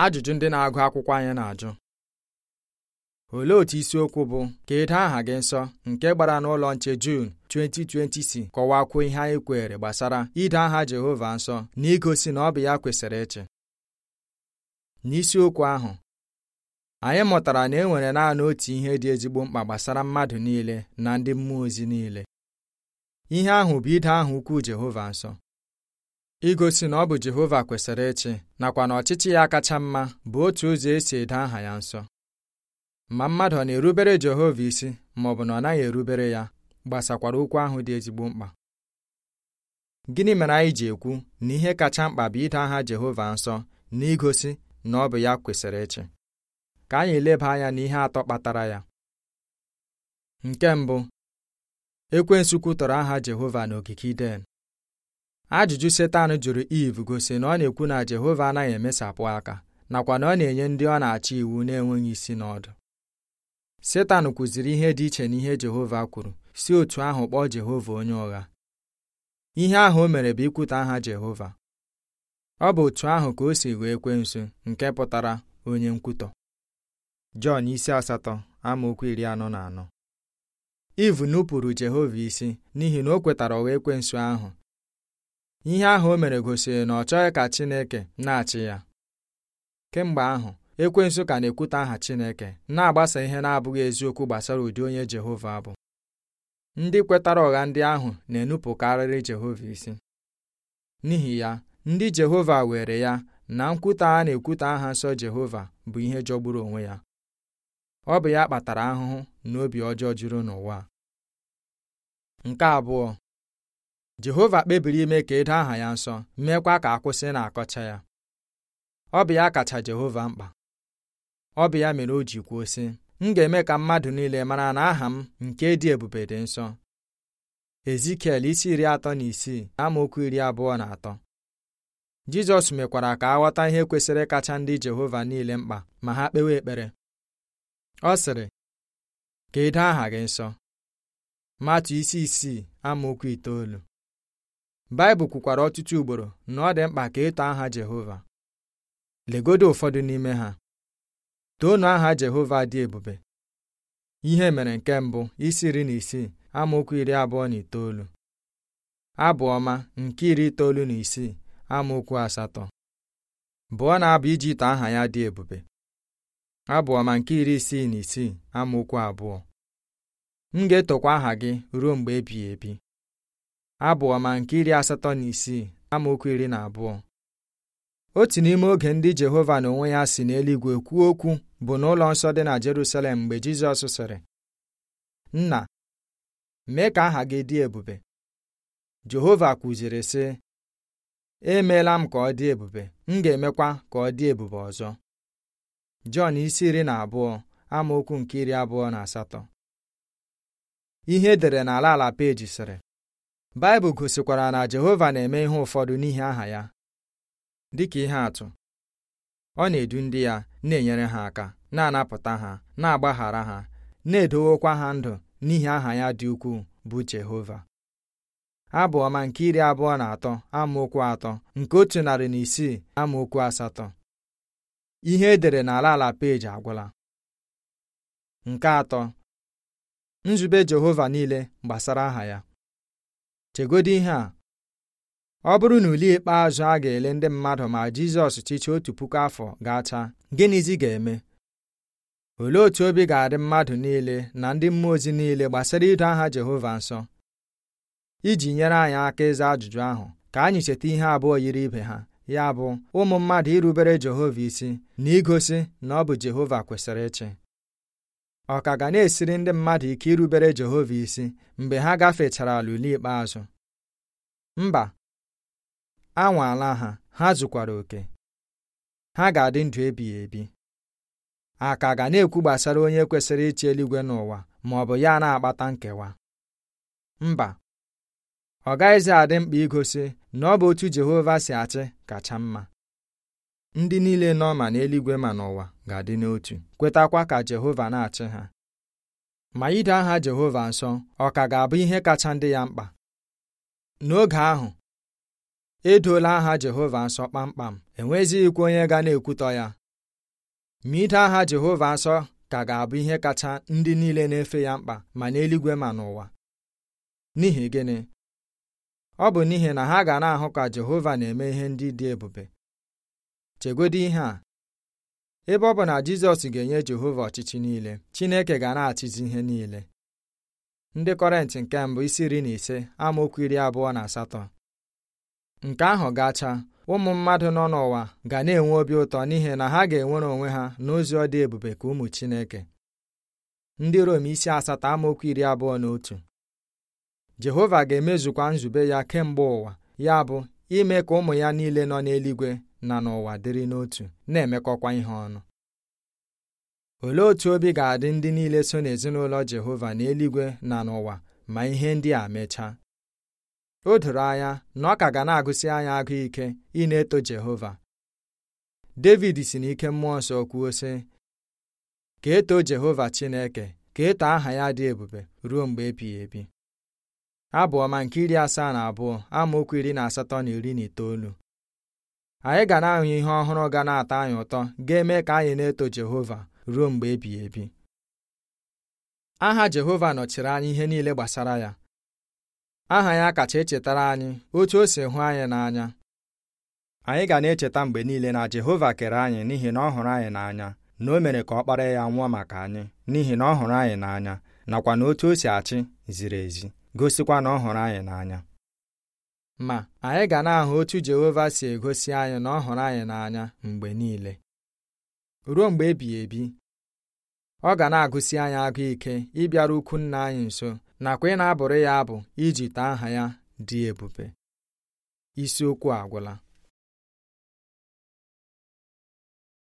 ajụjụ ndị na-agụ akwụkwọ anyị na-ajụ olee otu isiokwu bụ ka edo aha gị nsọ nke gbara n'ụlọ nche Jun 2020 si kọwakwuo ihe anyị kwere gbasara ide aha Jehova nsọ na igosi na ọ bụ ya kwesịrị ịchị n'isiokwu ahụ anyị mụtara na e nwere naanị otu ihe dị ezigbo mkpa gbasara mmadụ niile na ndị mmụọ ozi niile ihe ahụ bụ ide aha ukwu Jehova nsọ igosi na ọ bụ Jehova kwesịrị ịchị nakwa na ọchịchị ya kacha mma bụ otu ụzọ esi ede aha ya nsọ ma mmadụ ọ na-erubere Jehova isi ma ọ bụ na ọ naghị erubere ya gbasakwara okwu ahụ dị ezigbo mkpa gịnị mere anyị ji ekwu na ihe kacha mkpa bụ ide aha Jehova nsọ na igosi na ọ bụ ya kwesịrị ịchị ka anyị leba anya n'ihe atọ kpatara ya nke mbụ ekwensu kwutọrọ aha Jehova n'ogige Iden ajụjụ setan jụrụ iv gosi na ọ na-ekwu na jehova anaghị emesapụ aka nakwa na ọ na-enye ndị ọ na-achị iwu na-enweghị isi n'ọdụ setan kwuziri ihe dị iche na ihe jehova kwuru si otu ahụ kpọọ jehova onye ụgha ihe ahụ o mere bụ ikwuta aha jehova ọ bụ otu ahụ ka o si kwe nso nke pụtara onye nkwutọ jọn isi asatọ amaokwu iri anọ na anọ iv nupụrụ jehova isi n'ihi na o kwetara ụgha ekwensu ahụ ihe ahụ o mere gosiri na ọ chọghị ka Chineke na-achị ya kemgbe ahụ ekwe ka na-ekwute aha Chineke na-agbasa ihe na-abụghị eziokwu gbasara ụdị onye Jehova bụ ndị kwetara ụgha ndị ahụ na-enupụkarịrị Jehova isi n'ihi ya ndị Jehova were ya na nkwute a na-ekwute aha nsọ Jehova bụ ihe jọgburu onwe ya ọ bụ ya kpatara ahụhụ na obi ọjọọ juru n'ụwa nke abụọ jehova kpebiri ime ka edo aha ya nsọ meekwa ka akwụsị na-akọcha ya ọ bụ ya kacha jehova mkpa ọ bụ ya mere o ji kwuo sị m ga-eme ka mmadụ niile mara na aha m nke dị ebube dị nsọ ezikiel isi iri atọ na isii amaokwu iri abụọ na atọ jizọs mekwara ka aghọta ihe kwesịrị kacha ndị jehova niile mkpa ma ha kpewe ekpere ọ sịrị ka edo aha gị nsọ matụ isi isii amaokwu itoolu baịbụl kwukwara ọtụtụ ugboro na ọ dị mkpa ka ịtọ e aha jehova legodo ụfọdụ n'ime ha toonu aha jehova dị ebube ihe mere nke mbụ isi iri na isii amaokwu iri abụọ na itoolu abụọma ọma nke iri itoolu na isii amaokwu asatọ bụọ na-abụ iji ite aha ya dị ebube abụọma ọma nke iri isii na isii amaokwu abụọ m ga-etokwa aha gị ruo mgbe ebighị ebi abụ ọma nke iri asatọ na isii amaokwu iri na abụọ otu n'ime oge ndị Jehova na onwe ya si n'eluigwe kwuo okwu bụ n'ụlọ nsọ dị na Jerusalem mgbe Jizọs sịrị nna mee ka aha gị dị ebube Jehova kwuziri sị emeela m ka ọ dị ebube m ga-emekwa ka ọ dị ebube ọzọ Jọn isi iri na abụọ amaokwu nke iri abụọ na asatọ ihe edere n'ala ala peji sịrị baịbụl gosikwara na Jehova na-eme ihe ụfọdụ n'ihi aha ya dịka ihe atụ ọ na-edu ndị ya na-enyere ha aka na-anapụta ha na-agbaghara ha na-edowokwa ha ndụ n'ihi aha ya dị ukwuu bụ Jehova abụ ọma nke iri abụọ na atọ amaokwu atọ nke otu narị na isii amaokwu asatọ ihe edere n'ala ala peji agwụla nke atọ nzube Jehova niile gbasara aha ya chegodo ihe a ọ bụrụ na ule ikpeazụ a ga-ele ndị mmadụ ma Jizọs chichi otu puku afọ gachaa gịnịzi ga-eme olee otu obi ga-adị mmadụ niile na ndị mmụọ ozi niile gbasara ido aha Jehova nsọ iji nyere anyị aka ịza ajụjụ ahụ ka anyị cheta ihe abụọ yiri ibe ha ya bụ ụmụ mmadụ irubere Jehova isi na igosi na ọ bụ Jehova kwesịrị ịchị ọ ka ga na-esiri ndị mmadụ ike irubere Jehova isi mgbe ha gafechara ala ikpeazụ mba anwaala ha ha zụkwara oke ha ga-adị ndụ ebighị ebi a ka ga na-ekwu gbasara onye kwesịrị ịchị eluigwe n'ụwa ma ọ bụ ya na-akpata nkewa mba ọ gaghịzi adị mkpa igosi na ọ bụ otu Jehova si achị kacha mma ndị niile nọ ma n'eluigwe ma n'ụwa ga-adị n'otu kwetakwa ka Jehova na-achị ha ma ide aha Jehova nsọ ọ ka ga-abụ ihe kacha ndị ya mkpa n'oge ahụ edoola aha Jehova nsọ kpamkpam enwezighịkwa onye ga na-ekwutọ ya ma ide aha Jehova nsọ ka ga-abụ ihe kacha ndị niile na-efe ya mkpa ma n'eluigwe ma n'ụwa n'ihi gịnị ọ bụ n'ihi na ha ga na-ahụ ka Jehova na-eme ihe ndị dị ebube chegodi ihe a ebe ọ bụ na Jizọs ga-enye Jehova ọchịchị niile Chineke ga na-achịzi ihe niile ndị Kọrentị nke mbụ isi iri na ise amaokwu iri abụọ na asatọ nke ahụ gacha ụmụ mmadụ nọ n'ụwa ga na-enwe obi ụtọ n'ihi na ha ga-enwere onwe ha n'ozi ọ dị ebube ka ụmụ Chineke ndị Rom isi asatọ amaokwu iri abụọ na otu Jehova ga-emezukwa nzube ya kemgbe ụwa ya bụ ime ka ụmụ ya niile nọ n'eluigwe na n'ụwa dịrị n'otu na-emekọkwa ihe ọnụ olee otú obi ga-adị ndị niile so n'ezinụlọ Jehova n'eluigwe na n'ụwa ma ihe ndị a mechaa o doro anya na ọ ka ga na-agụsị anya agụ ike ị na-eto Jehova David si n'ike mmụọ nsọ kwuo sị ka eto Jehova Chineke ka eto aha ya dị ebube ruo mgbe ebighị ebi abụ ọma nke iri asaa na abụọ amaokwu iri na asatọ na iri na itoolu anyị ga na-ahụ ihe ọhụrụ ga na-atọ anyị ụtọ ga-eme ka anyị na-eto Jehova ruo mgbe ebighị ebi aha Jehova nọchiri anyị ihe niile gbasara ya aha ya kacha echetara anyị otu o si hụ anyị n'anya anyị ga na-echeta mgbe niile na Jehova kere anyị n'ihi na ọ hụrụ anyị n'anya na o mere ka ọ kpara ya nwụọ maka anyị n'ihi na ọ hụrụ anyị n'anya nakwa na otu o si achị ziri ezi gosikwa na ọ hụrụ anyị n'anya ma anyị ga na-ahụ otu Jehova si egosi anyị na ọ hụrụ anyị n'anya mgbe niile ruo mgbe ebighị ebi ọ ga na-agụsi anyị agụ ike ịbịara ukwu nna anyị nso nakwa ị na-abụrụ ya abụ iji taa aha ya dị ebube isiokwu agwụla